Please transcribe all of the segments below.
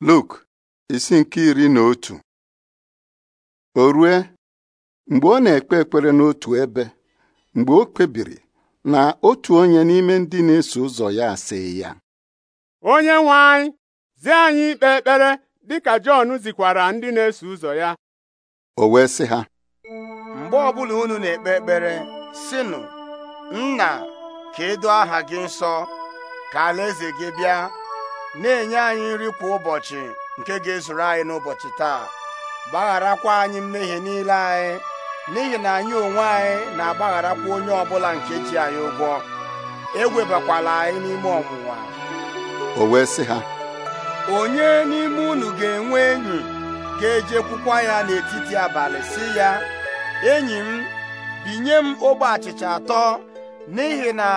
Luk isi nke iri na otu o rue mgbe ọ na-ekpe ekpere n'otu ebe mgbe o kpebiri na otu onye n'ime ndị na-eso ụzọ ya asị ya onye nwe anyị zi anyị ikpe ekpere dị ka Jọn zikwara ndị na-eso ụzọ ya o wee sị ha mgbe ọbụla unu na-ekpe ekpere sịnụ nna ka e aha gị nsọ ka alaeze gị bịa na-enye anyị nri kwa ụbọchị nke ga-ezuru anyị n'ụbọchị taa gbagharakwa anyị mmehie niile anyị n'ihi na anyị onwe anyị na-agbagharakwa onye ọbụla nke ji anyị ụgwọ ewebakwala anyị n'ime ọnwụwa o wee sị ha onye n'ime unu ga-enwe enyi ga-ejekwukwa ya n'etiti abalị si ya enyi m binye m ogbe achịcha atọ n'ihi na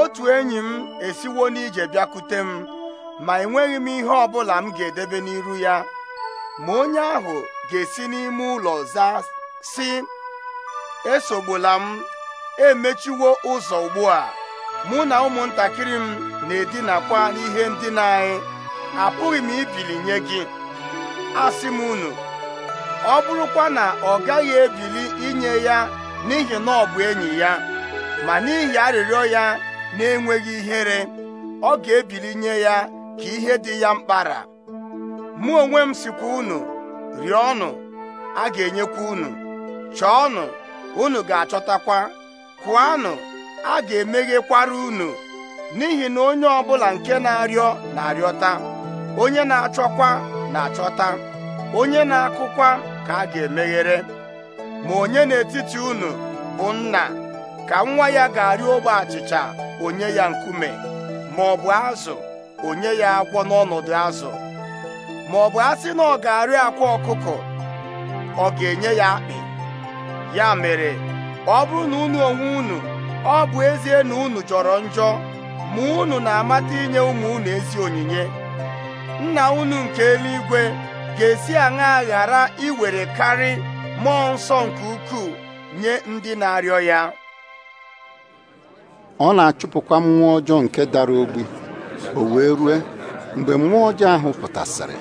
otu enyi m esiwo n'ije bịakute m ma enweghị m ihe ọ bụla m ga-edebe n'iru ya ma onye ahụ ga-esi n'ime ụlọ zaa si esogbula m emechiwo ụzọ ugbu a mụ na ụmụntakịrị m na-edinakwa n'ihe ndina anyị apụghị m ibili nye gị asị m unu ọ bụrụkwa na ọ gaghị ebili inye ya n'ihi na ọ bụ enyi ya ma n'ihi arịrịọ ya na-enweghị ihere ọ ga-ebili nye ya ka ihe dị ya mkpara mụ onwe m sikwa unu rịọnụ a ga-enyekwa unu chọọnụ unu ga-achọtakwa kụanụ a ga-emeghekwara unu n'ihi na onye ọbụla nke na-arịọ na-arịọta onye na-achọkwa na-achọta onye na-akụkwa ka a ga-emeghere ma onye n'etiti unu bụ nna ka nwa ya ga-arịọ ogbe achịcha onye ya nkume ma ọ bụ azụ onye ya akwọ n'ọnọdụ azụ ma ọ bụ asị na ọ ga-arị akwa ọkụkọ ọ ga-enye ya akpị ya mere ọ bụrụ na unu onwe unu ọ bụ ezie na unu jọrọ njọ ma unu na-amata inye ụmụ unu ezi onyinye nna unu nke eluigwe ga-esi aṅa ghara iwere karị mmụọ nsọ nke ukwuu nye ndị na-arịọ ya ọ na-achụpụkwa mmụọ ọjọọ nke dara ogbi o wee rue mgbe mmụọ ọjọọ ahụ pụtasịrị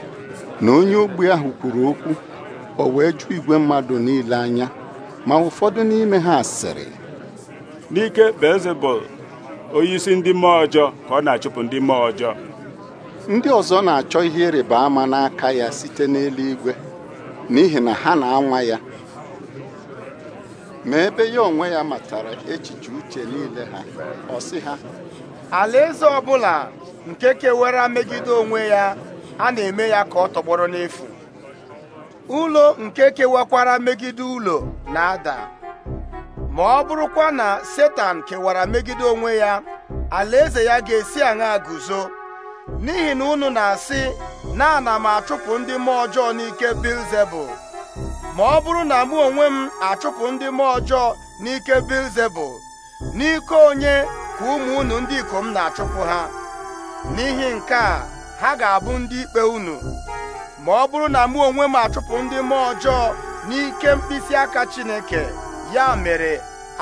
na onye ogbi ahụ kwuru okwu o wee jụ igwe mmadụ niile anya ma ụfọdụ n'ime ha sịrị n'ike Beelzebub onyeisi ndị mmụọ ọjọọ ka ọ na-achụpụ ndị mmụọ ọjọọ ndị ọzọ na-achọ ihe ịrịba ama n'aka ya site n'eluigwe n'ihi na ha na-anwa ya ma ebe ya onwe ya matara echiche uche niile ha ọ sị ha alaeze ọbụla nke kewara megide onwe ya a na-eme ya ka ọ tọgbọrọ n'efu ụlọ nke kewakwara megide ụlọ na-ada ma ọ bụrụkwa na setan kewara megide onwe ya alaeze ya ga-esi aṅa guzo n'ihi na unu na-asị na ana m achụpụ ndị mmụọ ọjọọ n'ike bilzebul ma ọ bụrụ na mụ onwe m achụpụ ndị mmụọ ọjọọ n'ike bilzebul n'ike onye ka ụmụ unu ndị ikom na-achụpụ ha n'ihi nke a ha ga-abụ ndị ikpe unu ma ọ bụrụ na mụ onwe m achụpụ ndị mmụọ ọjọọ n'ike mkpịsị aka Chineke ya mere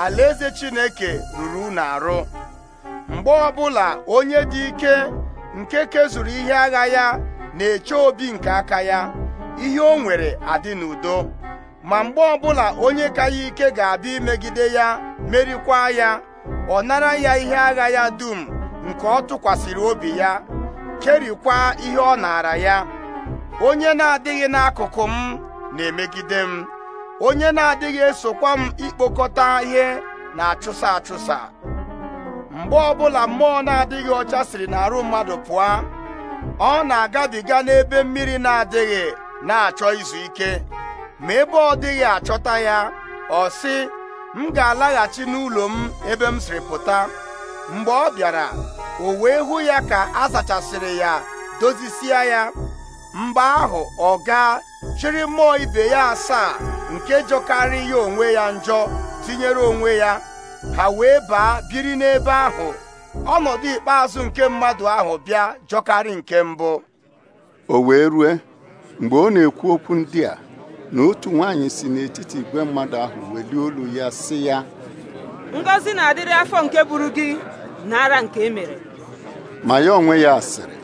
alaeze Chineke ruru unu arụ mgbe ọbụla onye dị ike nke kezuru ihe agha ya na-eche obi nke aka ya ihe o nwere adị n'udo ma mgbe ọbụla onye ka ya ike ga-abịa imegide ya merikwa ya ọ nara ya ihe agha ya dum nke ọ tụkwasịrị obi ya kerikwa ihe ọ naara ya onye na-adịghị n'akụkụ m na-emegide m onye na-adịghị esokwa m ikpokọta ihe na-achụsa achụsa mgbe ọbụla mmụọ na-adịghị ọcha siri n'arụ mmadụ pụọ ọ na-agabiga n'ebe mmiri na-adịghị na-achọ izu ike ma ebe ọ dịghị achọta ya ọ sị m ga-alaghachi n'ụlọ m ebe m siri pụta mgbe ọ bịara o wee hụ ya ka a sachasịrị ya dozisie ya mgbe ahụ ọ gaa chịrị mmụọ ibe ya asaa nke jọkarị ya onwe ya njọ tinyere onwe ya ha wee baa biri n'ebe ahụ ọnọdụ ikpeazụ nke mmadụ ahụ bịa jọkarị nke mbụ o wee rue mgbe ọ na-ekwu okwu ndị a na otu nwaanyị si n'etiti igwe mmadụ ahụ welie olu ya sị ya Ngozi na-adịrị afọ nke buru gị n'ara nke emere ma ya onwe ya asịrị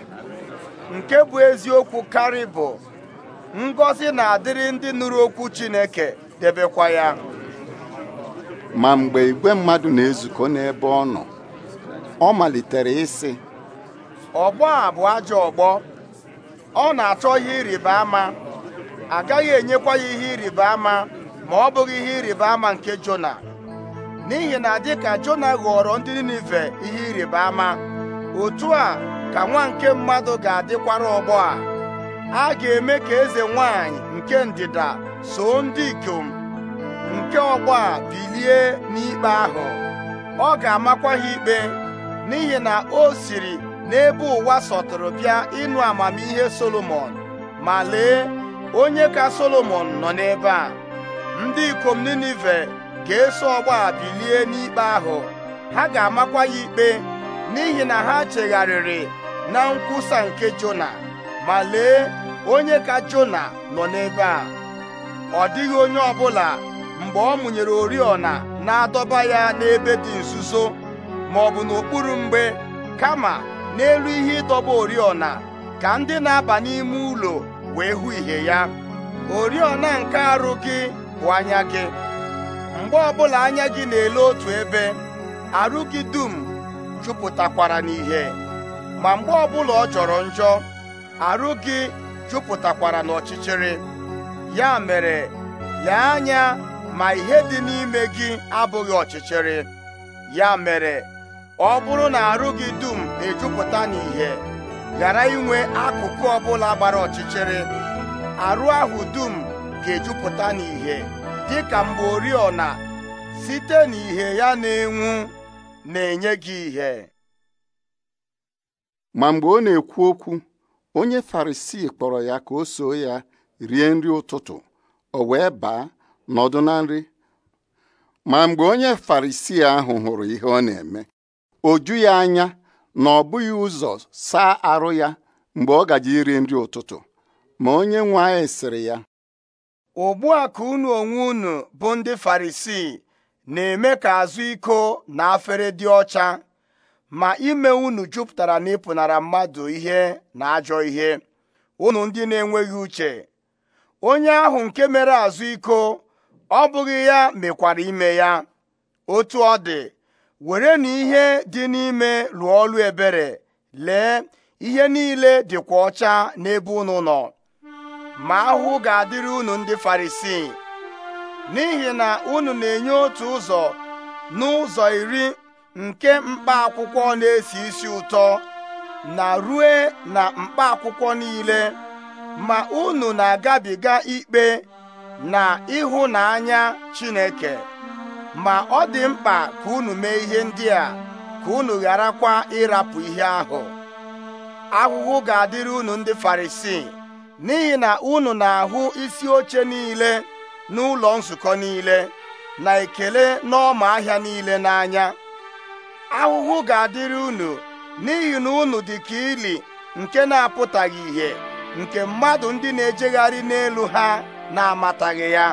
nke bụ eziokwu karị bụ ngọzi na-adịrị ndị nụrụ okwu Chineke debekwa ya ma mgbe igwe mmadụ na-ezukọ n'ebe ọ nọ ọ malitere ịsị ọgbọ a bụ ajọ ọgbọ ọ na-achọ ihe ịrịba ama agaghị enyekwa ya ihe ịrịba ama ma ọ bụghị ihe ịrịba ama nke Jona n'ihi na dịka Jona ghọrọ ndị Ninive ihe ịrịba ama otu a ka nwa nke mmadụ ga-adịkwara ọgbọ a a ga-eme ka eze nwanyị nke ndịda soo ndị ikom nke ọgbọ a bilie n'ikpe ahụ ọ ga-amakwa ha ikpe n'ihi na o siri n'ebe ụwa sọtụrụ bịa ịnụ amamihe Solomon ma lee onye ka Solomon nọ n'ebe a ndị ikom Ninive ga-eso ọgbọ a bilie n'ikpe ahụ ha ga-amakwa ya ikpe n'ihi na ha chegharịrị na nkwusa nke Jona ma lee onye ka Jona nọ n'ebe a ọ dịghị onye ọbụla mgbe ọ mụnyere oriọna na-adọba ya n'ebe dị nzuzo ma ọ bụ n'okpuru mgbe kama n'elu ihe ịdọba oriọna ka ndị na-aba n'ime ụlọ wee hụ ihe ya oriọna nke arụ gị bụ anya gị mgbe ọbụla anya gị na-ele otu ebe arụ gị dum jupụtakwara n'ihe ma mgbe ọbụla ọ jọrọ njọ arụ gị jupụtakwara n'ọchịchịrị ya mere ya anya ma ihe dị n'ime gị abụghị ọchịchịrị ya mere ọ bụrụ na arụ gị dum ejupụta n'ihe ghara inwe akụkụ ọbụla gbara ọchịchịrị arụ ahụ dum ga-ejupụta n'ihe dịka mgbe oriọna site n'ìhè ya na-enwu na-enye gị ihe ma mgbe ọ na-ekwu okwu onye Farisii kpọrọ ya ka o soo ya rie nri ụtụtụ o wee baa nọdụ na nri ma mgbe onye Farisii ahụ hụrụ ihe ọ na-eme o ju ya anya na ọ bụghị ụzọ saa arụ ya mgbe ọ gaji iri nri ụtụtụ ma onye nwe anyị sịrị ya ugbu a ka unu onwe unu bụ ndị Farisii na-eme ka azụ iko na afere dị ọcha ma ime unu jupụtara na ịpụnara mmadụ ihe na ajọ ihe unu ndị na-enweghị uche onye ahụ nke mere azụ iko ọ bụghị ya mekwara ime ya otu ọ dị were na ihe dị n'ime lụọ ọlụ ebere lee ihe niile dịkwa ọcha n'ebe unu nọ ma ahụhụ ga-adịrị unu ndị Farisii n'ihi na unu na-enye otu ụzọ n'ụzọ iri nke mkpa akwụkwọ na-esi isi ụtọ na rue na mkpa akwụkwọ niile ma unu na-agabiga ikpe na ịhụnanya Chineke ma ọ dị mkpa ka unu mee ihe ndị a ka unu gharakwa ịrapụ ihe ahụ ahụhụ ga-adịrị unu ndị Farisii n'ihi na unu na-ahụ isi oche niile n'ụlọ nzukọ niile na ekele n'ọma ahịa niile n'anya ahụhụ ga-adịrị unu n'ihi na unu dị ka ili nke na-apụtaghị ìhè nke mmadụ ndị na-ejegharị n'elu ha na-amataghị ya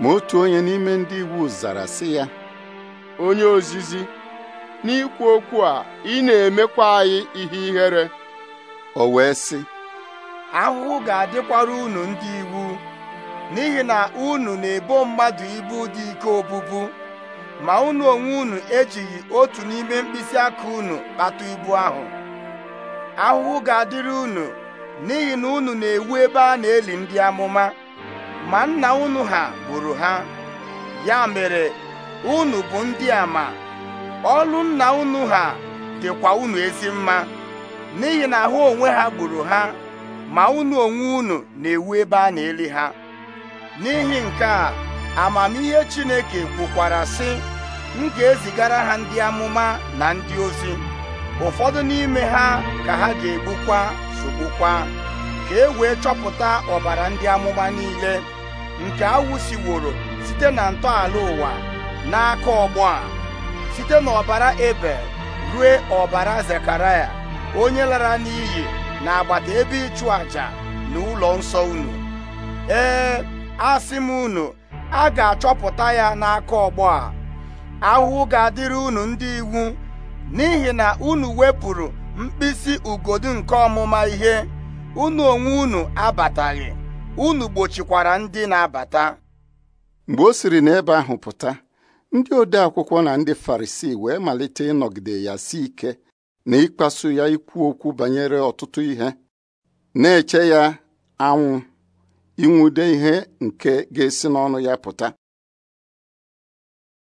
ma otu onye n'ime ndị iwu zara sị ya onye ozizi n'ikwu okwu a ị na-emekwa anyị ihe ihere o wee sị ahụhụ ga-adịkwara unu ndị iwu n'ihi na unu na-ebo mmadụ ibu dị ike obubu ma unu onwe unu ejighị otu n'ime mkpịsị aka unu kpata ibu ahụ ahụhụ ga-adịrị unu n'ihi na unu na-ewu ebe a na-eli ndị amụma ma nna unu ha gburu ha ya mere unu bụ ndị a ma ọlụ nna unu ha dịkwa unu ezi mma n'ihi na ahụ onwe ha gburu ha ma unu onwe unu na-ewu ebe a na-eli ha n'ihi nke a amamihe Chineke kwukwara sị m ga-ezigara ha ndị amụma na ndị ozi ụfọdụ n'ime ha ka ha ga-egbukwa sogbukwa ka e wee chọpụta ọbara ndị amụma niile nke awụsiworo site na ntọala ụwa n'aka ọgbọ a site n'ọbara ebe rue ọbara Zekaraya onye lara n'iyi na agbata ebe ịchụ àjà na ụlọ nsọ unu ee asị m unu a ga-achọpụta ya n'aka ọgbọ a ahụhụ ga-adịrị unu ndị iwu n'ihi na unu wepụrụ mkpịsị ugodu nke ọmụma ihe unu onwe unu abataghị unu gbochikwara ndị na-abata mgbe o siri n'ebe ahụ pụta ndị ode akwụkwọ na ndị Farisii wee malite ịnọgide ya si ike na ịkpasu ya ikwu okwu banyere ọtụtụ ihe na-eche ya anwụ inwude ihe nke ga-esi n'ọnụ ya pụta